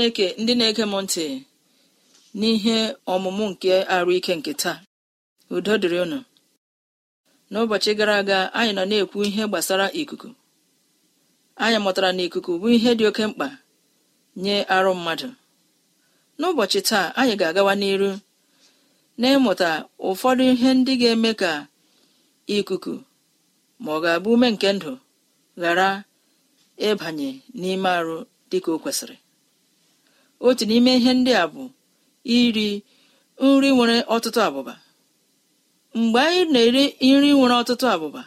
chineke ndị na-ege m ntị n'ihe ọmụmụ nke arụ ike nke taa udo dịrị ụnụ n'ụbọchị gara aga anyị nọ na-ekwu ihe gbasara ikuku anyị mụtara na ikuku bụ ihe dị oke mkpa nye arụ mmadụ n'ụbọchị taa anyị ga-agawa n'iru na-ịmụta ụfọdụ ihe ndị ga-eme ka ikuku ma ọ ga-abụ ume nke ndụ ghara ịbanye n'ime arụ dịka o kwesịrị otu n'ime ihe ndị a bụ iri nri nwere ọtụtụ abụba mgbe anyị na-eri nri nwere ọtụtụ abụba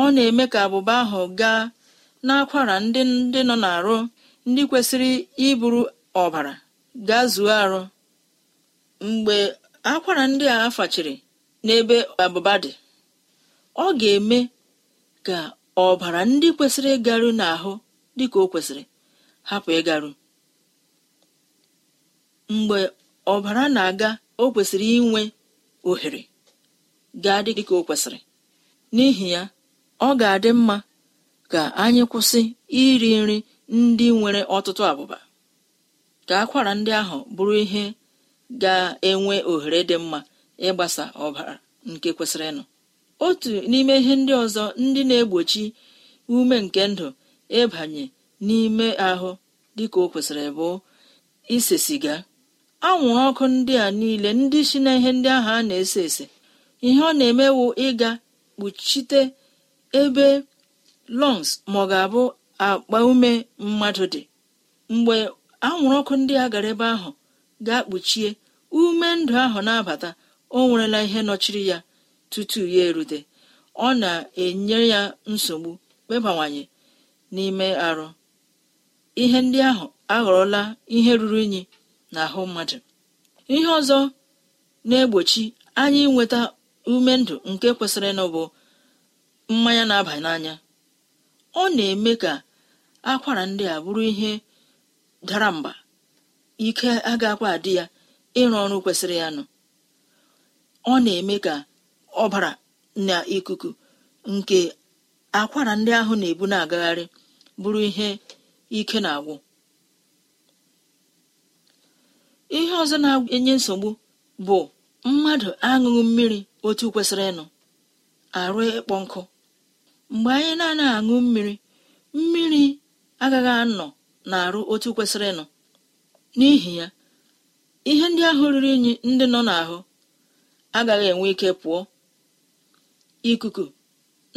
ọ na-eme ka abụba ahụ gaa n'akwara ndị ndị nọ n'arụ ndị kwesịrị iburu ọbara gaa zuo arụ mgbe akwara ndị a fachiri n'ebe abụba dị ọ ga-eme ka ọbara ndị kwesịrị ịgaru n'ahụ dịka o kwesịrị hapụ ịgaru mgbe ọbara na-aga o kwesịrị inwe ohere ga-adị dịka o kwesịrị n'ihi ya ọ ga-adị mma ka anyị kwụsị iri nri ndị nwere ọtụtụ abụba ka akwara ndị ahụ bụrụ ihe ga-enwe ohere dị mma ịgbasa ọbara nke kwesịrịnụ otu n'ime ihe ndị ọzọ ndị na-egbochi ume nke ndụ ịbanye n'ime ahụ dịka o kwesịrị bụ ise siga anwụrụ ọkụ ndị a niile ndị si na ihe ndị ahụ a na-ese ese ihe ọ na-emewu ịga kpuchite ebe lọngs ma ọ ga-abụ akpa ume mmadụ dị mgbe anwụrụ ọkụ ndị a gara ebe ahụ ga-akpuchie ume ndụ ahụ na-abata o nwerela ihe nọchiri ya tutu ya erute ọ na-enye ya nsogbu kpebawanye n'ime arụ ihe ndị ahụ aghọrọla ihe ruru unyi n'ahụ mmadụ ihe ọzọ na-egbochi anyị inweta ume ndụ nke kwesịrị nụ bụ mmanya na-aba n'anya ọ na-eme ka akwara ndị a bụrụ ihe dara mba ike agakwa adị ya ịrụ ọrụ kwesịrị ya nụ ọ na-eme ka ọbara na ikuku nke akwara ndị ahụ na-ebu na-agagharị bụrụ ihe ike na-agwụ ihe ọzọ na-enye nsogbu bụ mmadụ aṅụghị mmiri otu kwesịrị ịnụ arụ ịkpọ nkụ mgbe anyị na-anaghị aṅụ mmiri mmiri agaghị anọ na arụ otu kwesịrị ịnụ n'ihi ya ihe ndị ahụ riri unyi ndị nọ n'ahụ agaghị enwe ike pụọ ikuku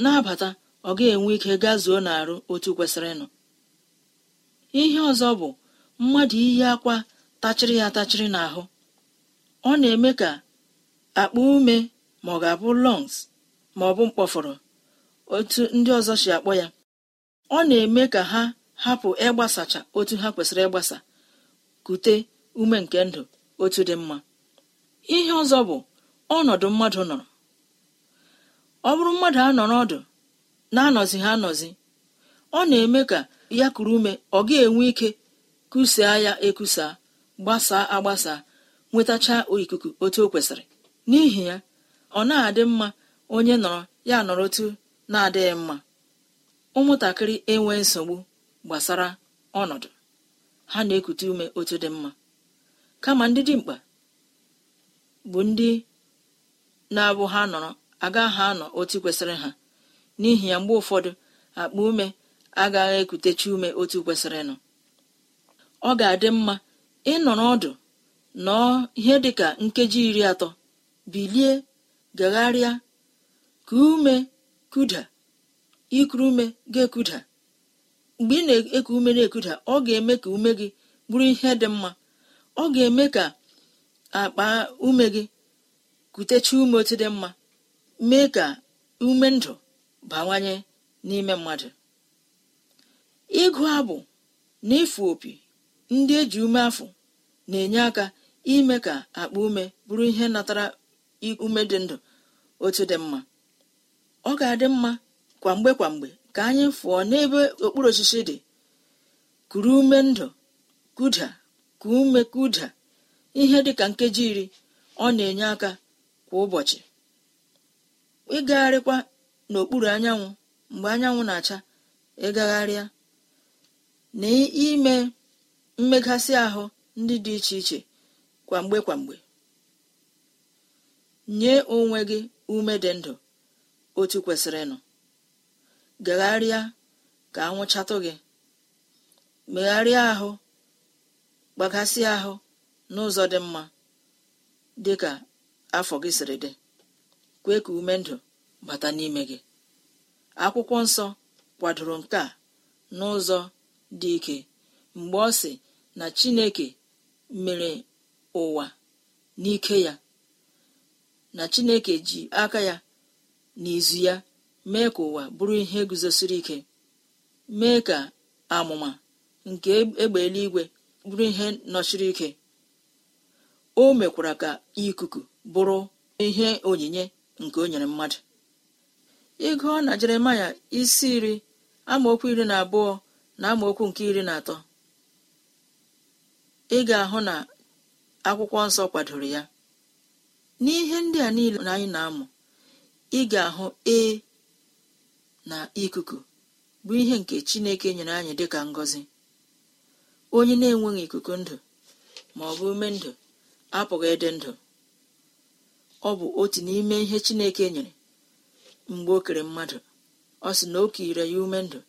na-abata ọ ga-enwe ike gazuo n'arụ otu kwesịrị ịnụ ihe ọzọ bụ mmadụ iyi akwa tachịrị ya atachịrị n'ahụ ọ na-eme ka akpụ ume ma ọ ga-abụ lungs ma ọ bụ mkpọfọrọ otu ndị ọzọ si akpọ ya ọ na-eme ka ha hapụ ịgbasacha otu ha kwesịrị ịgbasa kute ume nke ndụ otu dị mma ihe ọzọ bụ ọnọdụ mmadụ nọrọ ọ bụrụ mmadụ anọrọ ọdụ na-anọzi ha anọzi ọ na-eme ka ya kuru ume ọ ga-enwe ike kusaa ya ekusaa gbasaa agbasa nwetacha ikuku otu o kwesịrị n'ihi ya ọ na-adị mma onye nọrọ ya nọrọ otu na-adịghị mma ụmụntakịrị enwe nsogbu gbasara ọnọdụ ha na-ekute ume otu dị mma kama ndị dimkpa bụ ndị na-abụ ha nọrọ agaghị anọ otu kwesịrị ha n'ihi ya mgbe ụfọdụ akpa ume agaghị ekutechi ume otu kwesịrị nọ ọ ga-adị mma Ị ịnọrọ ọdụ nọọ ihe dị ka nkeji iri atọ bilie gagharịa ka ume kuda ikuru ume ga-ekuda mgbe ị na-eku ume na-ekuda ọ ga-eme ka ume gị bụrụ ihe dị mma ọ ga-eme ka akpa ume gị kutecha ume otu dị mma mee ka ume ndụ bawanye n'ime mmadụ ịgụ abụ na ịfụ opi ndị eji ume afọ na-enye aka ime ka akpa ume bụrụ ihe natara ume dị ndụ otu dị mma ọ ga-adị mma kwa mgbe kwa mgbe ka anyị fụọ n'ebe okpuru osisi dị kuru ume ndụ kuda ka ume kuda ihe dị ka nkeji iri ọ na-enye aka kwa ụbọchị ịgagharịkwa n'okpuru anyanwụ mgbe anyanwụ na-acha ịgagharịa na mmegasị ahụ ndị dị iche iche kwamgbe kwamgbe nye onwe gị ume dị ndụ otu kwesịrịnụ gagharịa ka anwụchatụ gị megharịa ahụ gbagasị ahụ n'ụzọ dị mma dị ka afọ gị siri dị kwee ka ume ndụ bata n'ime gị akwụkwọ nsọ kwadoro nke a n'ụzọ dị ike mgbe ọ si. na chineke mere ụwa n'ike ya na chineke ji aka ya n'izu ya mee ka ụwa bụrụ ihe guzosiri ike mee ka amụma nke egbe eluigwe bụrụ ihe nọchiri ike o mekwara ka ikuku bụrụ ihe onyinye nke o nyere mmadụ ịgụọ na jeremaya isi iri amaokwu iri na abụọ na amaokwu nke iri na atọ ị ga-ahụ na akwụkwọ nsọ kwadoro ya n'ihe ndị a niile na anyị na-amụ ị ga-ahụ e na ikuku bụ ihe nke Chineke nyere anyị dịka ngọzi onye na-enweghị ikuku ndụ ma ọ bụ ume ndụ apụghị ịdị ndụ ọ bụ otu n'ime ihe Chineke nyere mgbe o kere mmadụ ọ sị na o kire ya ume ndụ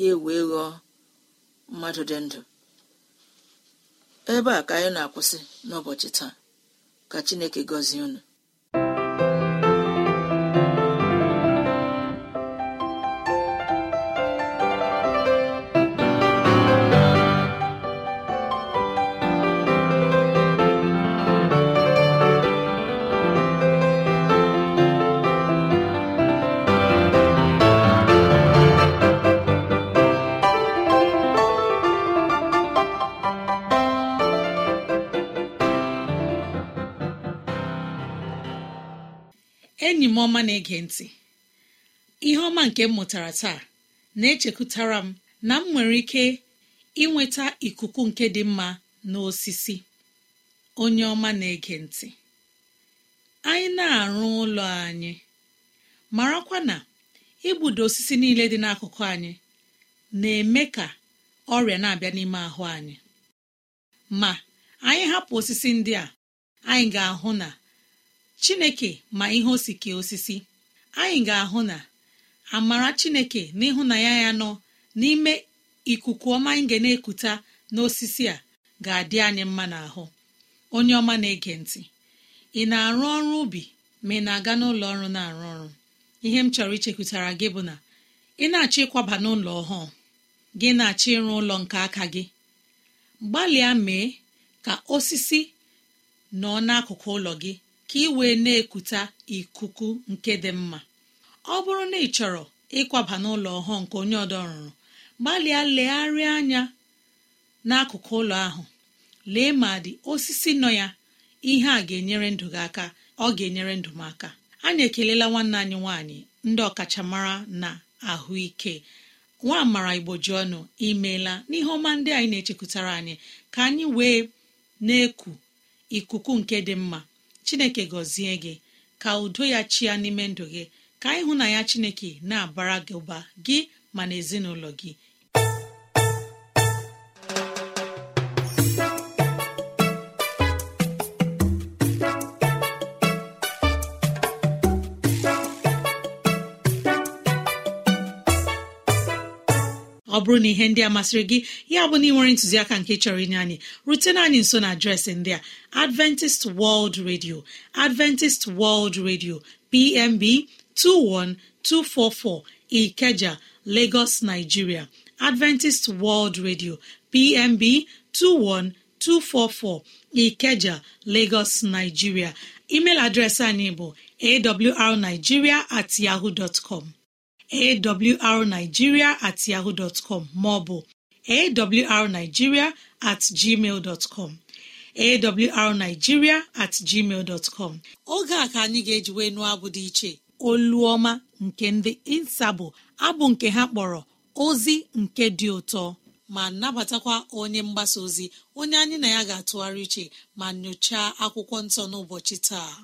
ya ewee ghọọ mmadụ dị ndụ ebe a ka anyị na-akwụsị n'ụbọchị taa ka Chineke gọzie unu enyi m ọma na-ege ntị ihe ọma nke m mụtara taa na-echekụtara m na m nwere ike inweta ikuku nke dị mma na osisi onye ọma na-ege ntị anyị na-arụ ụlọ anyị marakwa na igbudo osisi niile dị n'akụkụ anyị na-eme ka ọrịa na-abịa n'ime ahụ anyị ma anyị hapụ osisi ndị a anyị ga-ahụ na chineke ma ihe osike osisi anyị ga-ahụ na amara chineke na ya nọ n'ime ikuku ọma anyị ga na-ekuta n'osisi a ga-adị anyị mma n'ahụ onye ọma na-ege ntị ị na-arụ ọrụ ubi ma ị na-aga n'ụlọ ọrụ na-arụ ọrụ ihe m chọrọ ichekwutara gị bụ na ị na-achọ ịkwaba n'ụlọ ọhụụ gị na-achọ ịrụ ụlọ nke aka gị gbalịa mee ka osisi nọ n'akụkụ ụlọ gị ka ị wee na ekute ikuku nke dị mma ọ bụrụ na ị chọrọ ịkwaba n'ụlọ ọhụụ nke onye ọdọrụrụ gbalịa legharịa anya n'akụkụ ụlọ ahụ lee ma dị osisi nọ ya ihe a ga-enyere ndụ gị aka ọ ga-enyere ndụ m aka anyị ekelela nwanne anyị nwaanyị ndị ọkachamara na ahụike nwa amara igbo ji ọnụ imeela n'ihe ọma ndị anyị na-echekwutara anyị ka anyị wee na-eku ikuku nke dị mma chineke gọzie gị ka udo ya chia n'ime ndụ gị ka ịhụ na ya chineke na-abara gị ụba gị ma na ezinụlọ gị bụrụ na ihe ndị a masịrị gị ya bụ na ị nwere ntụziaka nke chọrọ inye anyị rutena anyị nso na adreesị ndị a adventist world radio adventist world radio pmb 21244 ikeja lagos nigeria adventist world radio pmb 21244 ikeja lagos nigeria email adreesị anyị bụ awrnigeria at yahoo dot com awrnigeria at yahoo dọtcọm maọbụ awrnigeria at gmail awrnigeria at gmail oge a ka anyị ga wee nụọ abụ dị iche ọma nke ndị insabụ abụ nke ha kpọrọ ozi nke dị ụtọ ma nabatakwa onye mgbasa ozi onye anyị na ya ga-atụgharị uche ma nyochaa akwụkwọ nsọ n'ụbọchị taa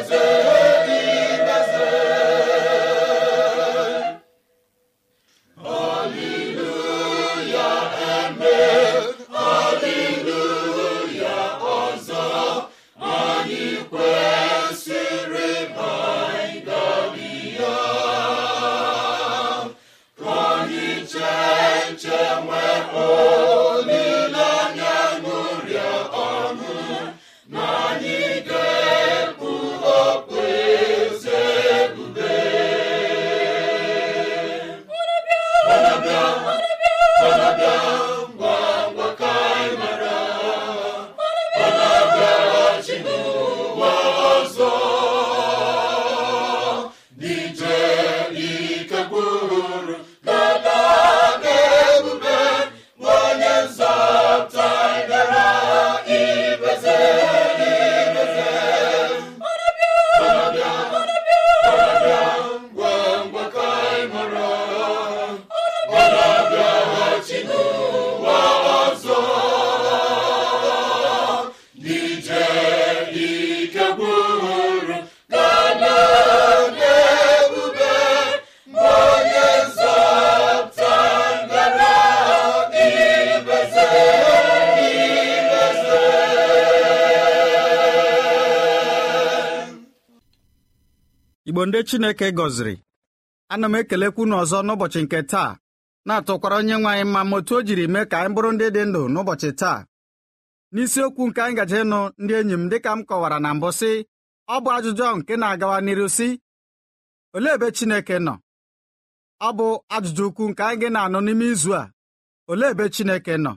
eze Chineke gọziri ana m ekelekwu unu ọzọ n'ụbọchị nke taa na-atụkwara onye nwe anyị mma ma otu o jiri mee ka anyị bụrụ ndị dị ndụ n'ụbọchị taa n'isiokwu nke anyị gaje ịnụ ndị enyi m dịka m kọwara na mbụ sị ọ bụ ajụjụ ahụ nke na-agawa n'iru sị olee ebe Chineke nọ ọ bụ ajụjụ ukwu nke anyị gị na-anụ n'ime izu a olee ebe Chineke nọ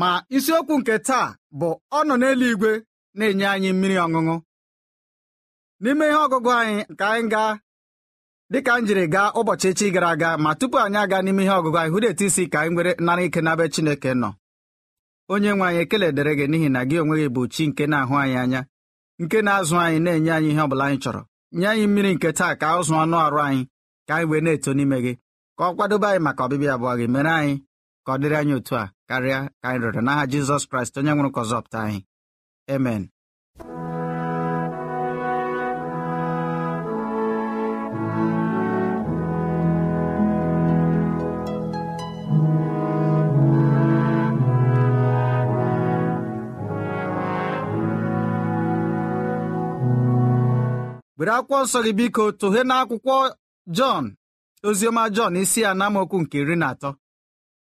ma isiokwu nke taa bụ ọ nọ n'eluigwe na-enye anyị mmiri ọṅụṅụ n'ime ihe ọgụgụ anyị ka anyị gaa dịka m jiri gaa ụbọchị echi gara aga ma tupu anyị aga n'ime ihe ọgụgụ anyị hụrụ etu isi ka anyị nwere nara ike n'abe Chineke nọ onye nwe anyị ekele dịrị gị n'ihi na gị onwe gị bụ chi nke na-ahụ anyị anya nke na-azụ anyị na-enye anyị ihe ọ bụla anyị chọrọ nye anyị mmiri nke taa ka ụzụ ọnụ arụ anyị ka anyị wee na-eto n'ime gị ka ọ kwadobe anyị maka ọbịbịa abụọ gị mere anyị ka ọ dịrị anyị otu a karịa ka anyị rịọrọ n'aha Jizọs Kraịst onye nwụrụ ka anyị emen were akwụkwọ nsọ gị biko tụghe n'akwụkwọ Jọn oziọma Jọn isi ya na nke iri na atọ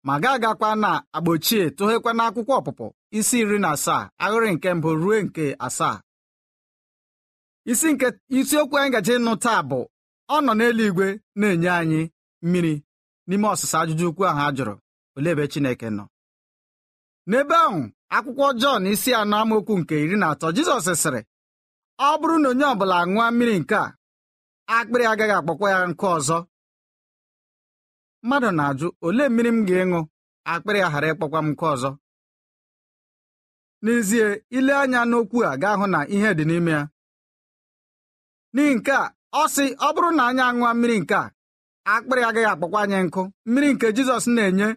ma ga agakwa na agba ochie tụghekwa n'akwụkwọ ọpụpụ isi iri na asaa ahịrị nke mbụ ruo nke asaa isi nke isiokwu anyị gaje ịnụ taa bụ ọ nọ n'eluigwe na-enye anyị mmiri n'ime ọsịsa ajụjụ ukwu ahụ a jụrụ olee ebe Chineke nọ n'ebe ahụ akwụkwọ Jọn isi anọ amaokwu nke iri na atọ Jizọs sịrị ọ bụrụ na onye ọbụla ṅụọ mmiri nke a akpịrị agaghị akpọkwa ya nke ọzọ mmadụ na-ajụ olee mmiri m ga-ịṅụ akpịrị a ghara ịkpọkwa m nke ọzọ n'ezie ile anya n'okwu a ga hụ na ihe dị n'ime ya n'ihi nke a ọ sị ọ bụrụ na anyị aṅụọ mmiri nke a akpịrị agaghị akpọkwa anyị nkụ mmiri nke Jizọs na-enye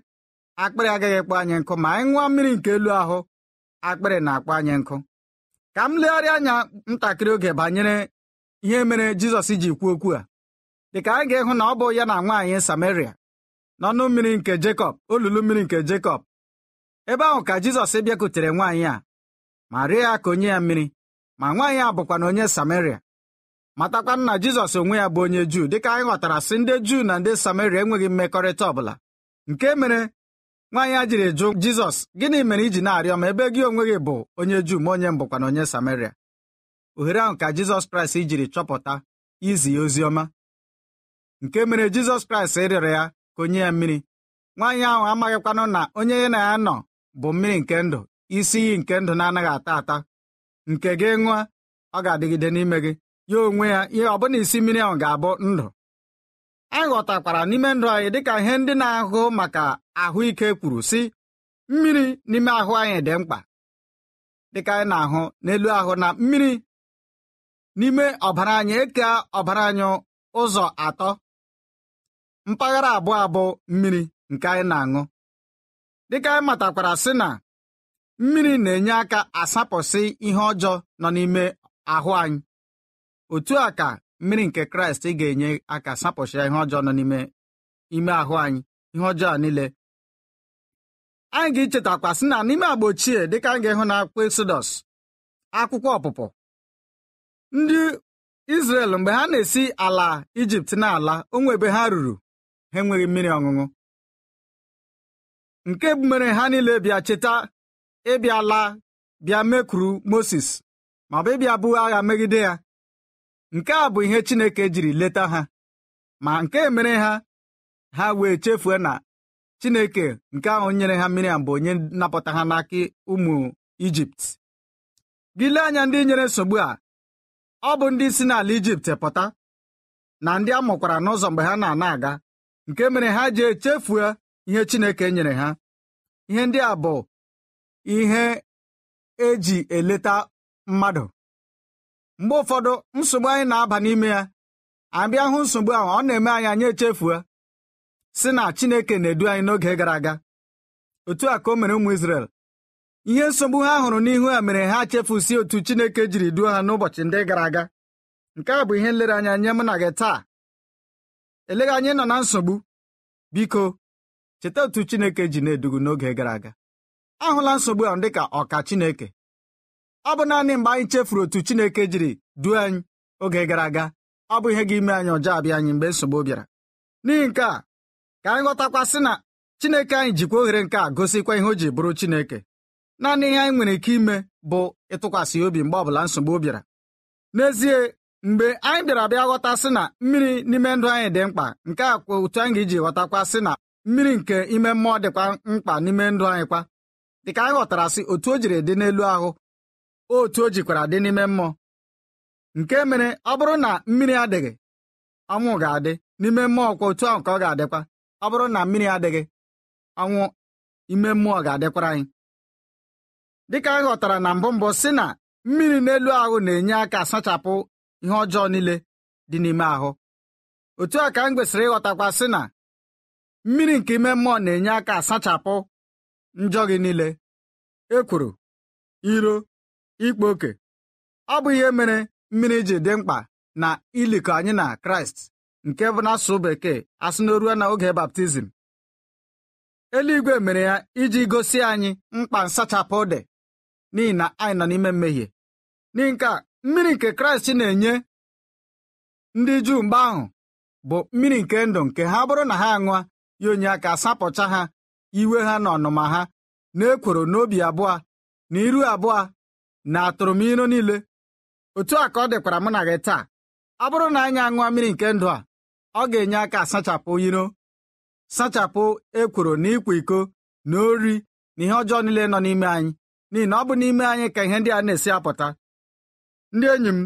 akpịrị agaghị akpọ anyị nkụ ma anyị ṅụọ mmiri nke elu ahụ akpịrị na-akpọ anyị nkụ ka m legharịa anya ntakịrị oge banyere ihe mere Jizọs ji kwuo okwu a dịka anyị ga-ịhụ na ọ bụ ya na nwaanyị Samaria n'ọnụ mmiri nke Jekọb olulu mmiri nke Jekọb ebe ahụ ka Jizọs bịakutere nwaanyị a ma rịọ ya ka onye ya mmiri ma nwaanyị a bụkwa na onye Samaria matakwa na Jizọs onwe ya bụ onye Juu dịka anyị ghọtara sị ndị Juu na ndị Samaria enweghị mmekọrịta ọbụla nke mere nwaanyị ya jiri jụ jizọs gịnị mere iji na-arịọ m ebe gị onwe gị bụ onye juu ma onye mbụkwana onye samaria ohere ahụ ka jizọs kraịst jiri chọpụta izi ya ozi ọma nke mere jizọs kraịst rịọrọ ya ka onye ya mmiri nwaanyị ahụ amaghịkwanụ na onye ya na ya nọ bụ mmiri nke ndụ isi iyi nke ndụ na-anaghị ata ata nke gị ṅụa ọ ga-adịgide n'ime gị ya onwe ya ihe ọbụna isi mmiri ahụ ga-abụ ndụ anyị ghọtakwara n'ime ndụ anyị dịka ihe ndị na-ahụ maka ahụike kwuru sị mmiri n'ime ahụ anyị dị mkpa dịka anyị na-ahụ n'elu ahụ na mmiri n'ime ọbara anyị eke ọbara anyị ụzọ atọ mpaghara abụọ abụ mmiri nke anyị na-aṅụ dịka anyị matakwara sị na mmiri na-enye aka asapụsị ihe ọjọọ nọ n'ime ahụ anyị otu a ka mmiri nke kraịst ga-enye aka sapụcha ihe ọjọọ nọ n'ime ime ahụ anyị ihe ọjọọ niile anyị ga-echetakwa sị na n'ime agba ochie dịka anyị ga-ịhụ na akwụkwọ Exodus akwụkwọ ọpụpụ ndị Israel mgbe ha na-esi ala Ijipt n'ala onwe ebe ha ruru ha enweghị mmiri ọṅụṅụ nke mere ha niile bịa cheta ịbịa la bịa mekwuru Moses ma ọ bụ ịbịa agha megide ya nke a bụ ihe Chineke jiri leta ha ma nke mere ha ha wee chefue na Chineke nke ahụ nyere ha Miriam bụ onye napụta ha n'aka ụmụ Ijipt gị anya ndị nyere nsogbu a ọ bụ ndị si n'ala Ijipt pụta na ndị a mụkwara n'ụzọ mgbe ha na-ana aga nke mere ha ji echefue ihe Chineke nyere ha ihe ndị a bụ ihe eji eleta mmadụ mgbe ụfọdụ nsogbu anyị na-aba n'ime ya abịa hụ nsogbu ahụ ọ na-eme anyị anyị echefuo si na Chineke na-edu anyị n'oge gara aga otu a ka o mere ụmụ Izrel ihe nsogbu ha hụrụ n'ihu ha mere ha chefusi otu Chineke jiri duo ha n'ụbọchị ndị gara aga nke a bụ ihe nlereanya nye mụ na gị taa eleghị anyị nọ na nsogbu biko cheta otu Chineke ji na-edugu n'oge gara aga ahụla nsogbu ahụ dịka ọka Chineke ọ bụ naanị mgbe anyị chefuru otu Chineke jiri duo anyị oge gara aga ọ bụ ihe ga-ime anyị ọjọọ abịa anyị mgbe nsogbu bịara n'ihi nke a ka anyị ghọtakwa sị na Chineke anyị jikwa oghere nke a gosikwa ihe o ji bụrụ Chineke naanị ihe anyị nwere ike ime bụ ịtụkwasị obi mgbe ọbụla nsogbu bịara n'ezie mgbe anyị bịara bịa ghọta sị na mmiri n'ime ndụ anyị dị mkpa nke a kwa otu anyị ga-eji ghọtakwa sị na mmiri nke ime mmụọ dịkwa mkpa n'ime ndụ anyị kwa dịka anyị ghọtara sị otu o jiri dị n'elu ahụ otu o jikwara dị n'ime mmụọ nke mere ọ bụrụ na mmiri adịghị ọnwụ ga-adị n'ime mmụọ kwa otu ahụ ka ọ ga-adịkwa ọ bụrụ na mmiri adịghị ọnwụ ime mmụọ ga-adịkwara anyị dịka anyị ghọtara na mbụ mbụ si na mmiri n'elu ahụ na-enye aka asachapụ ihe ọjọọ niile dị n'ime ahụ otu a ka m kwesịrị ịghọtakwa sị na mmiri nke ime mmụọ na-enye aka asachapụ njọ gị niile ekworo iro ikpa oke ọ bụ ihe mere mmiri ji dị mkpa na ilikọ anyị na kraịst nke bụ asụ bekee asụ n'oruo na oge baptizim eluigwe mere ya iji gosi anyị mkpa nsachapụ dị n'ihi na anyị nọ n'ime mmehie n'ihi nke mmiri nke kraịst na-enye ndị juu mgbe ahụ bụ mmiri nke ndụ nke ha bụrụ na ha aṅụa ya onye aka asapụcha ha iwe ha na ọnụma ha na ekworo n'obi abụọ na iru abụọ na atụrụ m niile otu a ka ọ dịkwara mụ na gị taa ọ bụrụ na anyị aṅụọ mmiri nke ndụ a ọ ga-enye aka sachapụ iro sachapụ ekworo na ịkwa iko na ori na ihe ọjọọ niile nọ n'ime anyị n'ihi na ọ bụ n'ime anyị ka ihe ndị a na-esi apụta ndị enyi m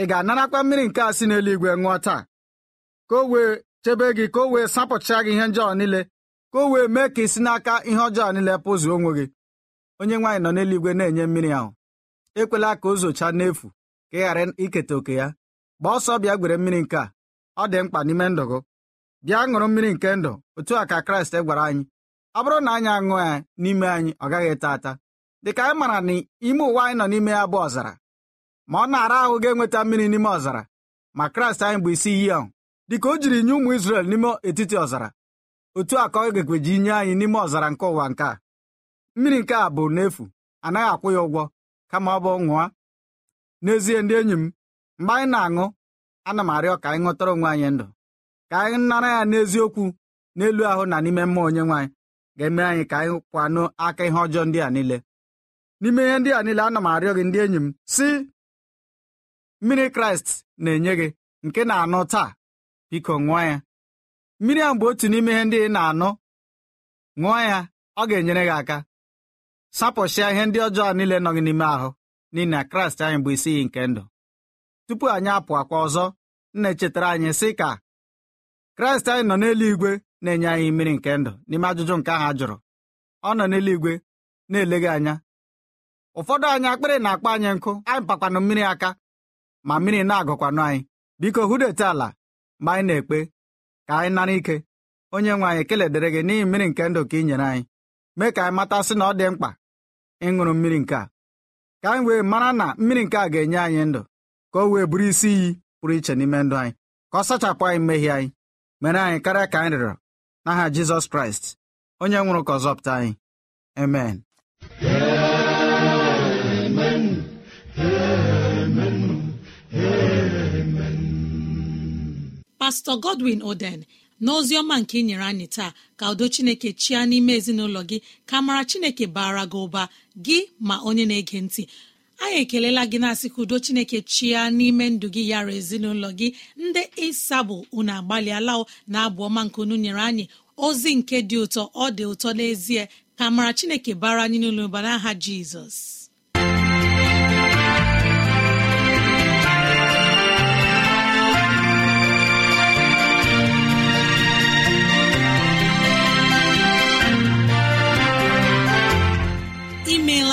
ị ga-anarakwa mmiri nke a si n'eluigwe ṅụọ taa ka o wee chebe gị ka o wee sapụcha gị ihe njọọ niile ka o wee mee ka ị si n'aka ihe ọjọọ niile pụzụ onwe gị onye nwaanyị nọ n'eluigwe na-enye mmiri ahụ ekwela ka o n'efu ka ị ghara iketa oke ya gbaa ọsọ bịa gwere mmiri nke a ọ dị mkpa n'ime ndụ gị bịa ṅụrụ mmiri nke ndụ otu a ka kraịst gwara anyị ọ bụrụ na anyị aṅụ ya n'ime anyị ọ gaghị ata ata dịka anyị mara na ime ụwa anyị nọ n'ime ya bụ ọzara ma ọ na-ara ahụ ga-enweta mmiri n'ime ọzara ma kraịst anyị bụ isi iyi ahụ dịka o jiri nye ụmụ Izrel n'ime etiti ọzara otu a ka ọ gekweji nye anyị n'ime ọzara nke ụwa nke a mmiri nke a bụ n'efu anaghị akwụ ya ụgwọ kama ọ bụ ṅụọ n'ezie ndị enyi m mgbe anyị na-aṅụ ana m arịọ ka anyị ṅụtara onwe anyị ndụ ka anyị nara ya n'eziokwu n'elu ahụ na n'ime mmụọ onye nwaanyị ga-eme anyị ka anyị kwanụ aka ihe ọjọọ ndị a niile n'ime ihe ndị a niile ana m arịọ gị ndị enyi m si mmiri kraịst na-enye gị nke na-anụ taa biko ṅụọ ya mmiri a mgbe otu n'ime ihe ndị ị na-anụ ṅụọ ya ọ ga-enyere gị aka sapụsịa ihe ndị ọjọọ niile nọ gị n'ime ahụ n'ihi na kraịst anyị bụ isi iyi nke ndụ tupu anyị apụ akwa ọzọ nna echetara anyị sị ka kraịst anyị nọ n'elu igwe na-enye anyị mmiri nke ndụ n'ime ajụjụ nke ahụ a jụrụ ọ nọ n'elu igwe na-eleghị anya ụfọdụ anyị akpịrị na-akpọ anyị nkụ anyị pakwanụ mmiri aka ma mmiri na-agụkwanụ anyị biko hụdete ala ma anyị na-ekpe ka anyị nara ike onye nwe anyị keledere gị n'ihi mmiri nke ndụ ka ị nyere anyị mee ka anyị matasị na ọ dị mkpa ịṅụrụ mmiri nke a ka anyị wee mara na mmiri nke a ga-enye anyị ndụ ka o wee bụrụ isi iyi pụrụ iche n'ime ndụ anyị ka ọ sachapụ anyị mmehie anyị mere anyị karịa ka anyị rịọrọ n'aha Jizọs Kraịst onye nwụrụ ka ọzọpụta anyị amen Pastọ Godwin Oden n'ozi ọma nke ị nyere anyị taa ka udo chineke chia n'ime ezinụlọ gị ka mara chineke baara gị ụba gị ma onye na-ege ntị anyị ekelela gị na-asị ka udo chineke chia n'ime ndụ gị yara ezinụlọ gị ndị ịsabụ unu agbalịala na abụ ọma nke unu nyere anyị ozi nke dị ụtọ ọ dị ụtọ n'ezie ka mara chineke bara anyị n'ụlọ ụba n'aha jizọs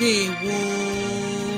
Ndewo